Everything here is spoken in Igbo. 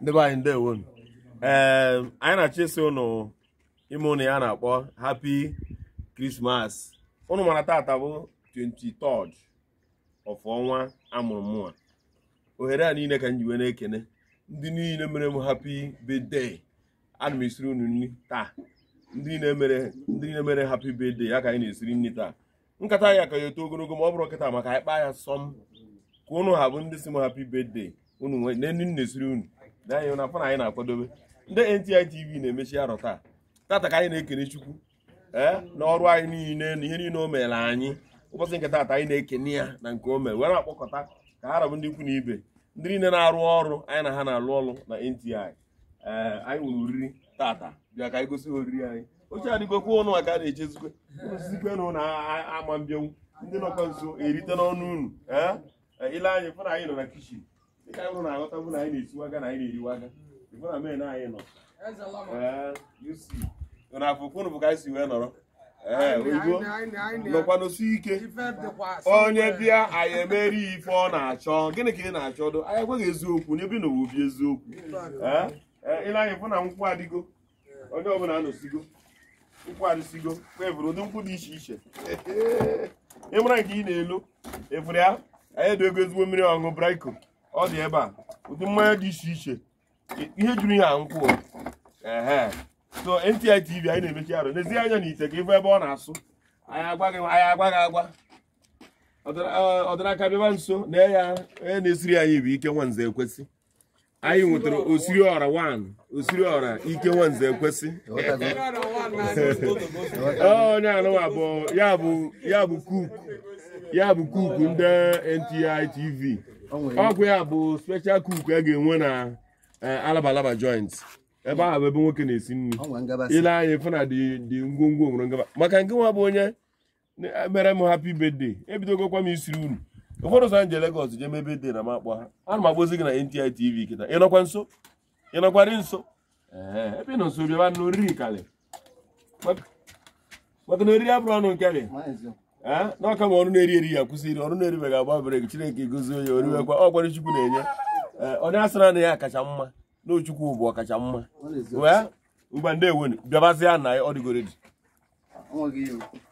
ndị anyị ndewo ee ehm, anyị na-achọ ịsị ụnụ ime ụnụ ya na-akpọ hapi krismas ụnụ mara taata bụ 23rd of ọnwa amụrụ mụnwa ohere a niile ka m ji wee na-ekene ndị niile mere m happy birthday ana m esiri unu nri taa ndị niile mere ndị niile mere happy birthday ya ka anyị na-esiri nri taa nkata ya ka ya eto ogologo ma ọ bụrụ kịta maka anyị kpaa ya sọm ka ụnụ ha bụ ndị si m happy birthday unu na-esiri unu na afọ na anyị na-akwadobe ndị NTI TV na-emechi arọ taa tata ka anyị na-ekene Chukwu ee eh, na ọrụ anyị niile na ihe niile o mere anyị ụbọchị nke taata anyị na-ekene ya na nke o mere were akpọkọta ka ha rabụ ndị ikwu na ibe ndị niile na-arụ ọrụ anyị na ha na-alụ ọrụ na NTI ee eh, anyị nwere oriri tata bịa ka anyị gosi oriri anyị oche adịgokwa ụnụ maka a na-echezikwe osizikwe na ụlọ ama mbịanwu ndị nọkwa nso erite n'ọnụ unu ee eh, ile anyị fụna anyị nọ na kishin Dị ka anyị hụrụ na aghọtabụ na anyị na-esiwe aka na anyị na-eriwe aka ife na men anyị nọ na afụkwụnụ bụ ka anyị si wee nọrọ ee oyibo nọkwanụsi ike onye bịa anyị emeri ife ọ na-achọ gịnị ka ị na-achọ dụ anyị ekweghị eziokwu n'ebe na obi eziokwu ịnanya e, fụ na nkwụ adịgo onye ọbụla anọsigo nkwụ adịsigo kwevụrụ ụdị nkwụ dị iche iche ịmara nke ị na-elu efere ya anyị ego ezigbo mmiri ọṅụ braiko ọ dị ebe a ụdị mmanya dị iche iche ihe juru ya nkwụ ehe so NTI TV anyị na-emechi arụ n'ezie anya n'ite ka ịbụ ebe ọ na-asụ anyị agwa gị agwa ọdịnaka bịaba nso na ya onye na-esiri anyị bụ ike nwanze ekwesị anyị nwetara osiri ọra 1 osiri ọra ike nwanze ekwesị onye anụwa bụ ya bụ kuku ya bụ kuku ndị NTI TV ọgwụ ya bụ special cook a ga-enwe na alabalaba joint ebe ahụ bụ ebe nwoke na-esi nri ile anya ife na dị ngwongwo nwere ngaba maka nke nwa bụ onye mere m happy birthday ebidogokwa m isiri unu ụfọdụ ụzọ nje legos jee mebe dị na makpọ ha ana m agbozi gị na NTI TV kịta ịnọkwa nso ịnọkwara nso ebe nọ nso bịaba na oriri kalị maka na oriri abụrụ ọnụ nke Eh? n'ọka ma ọrụ na-eri eri ya kwụsịrị ọrụ na-eribeghị agba bere chineke gozie onye ọ ọkwara chukwu na-enye onye eh, asịra na ya kacha mma na ochukwu bụ ọkacha mma wee ngwa ndị ewenu na ya ọ